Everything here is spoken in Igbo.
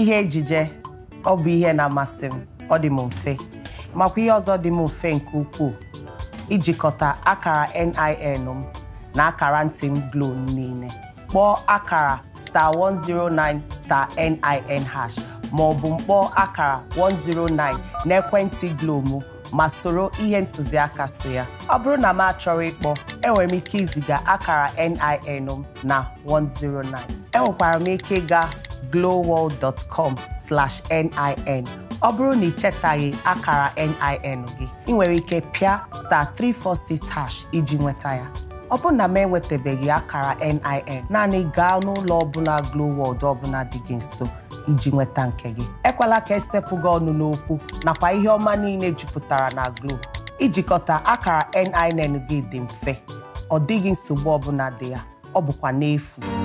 ihe ejije ọ bụ ihe na-amasị m ọ dị m mfe makwa ihe ọzọ dị m mfe nke ukwuu ijikọta akara NIN m na akara ntị m Glo niile kpọọ akara star 109 star NIN hash ma ọ bụ mkpọọ akara 109 n'ekwentị Glo m ma soro ihe ntụziaka so ya ọ bụrụ na m achọrọ ịkpọ enwere m ike iziga akara NIN m na 109 enwekwara m ike ịga glowworld.com slash nin ọ bụrụ na ị chetaghị akara NIN gị ị nwere ike pịa star 346 hash iji nweta ya ọ bụrụ na m enwetabeghị akara NIN naanị gaa n'ụlọ ọbụla glowworld ọbụla dị gị nso iji nweta nke gị ekwela ka esepụ gị ọnụ n'okwu nakwa ihe ọma niile jupụtara na Glo ijikọta akara NIN gị dị mfe ọ dịghị nsogbu ọbụla dị ya ọ bụkwa n'efu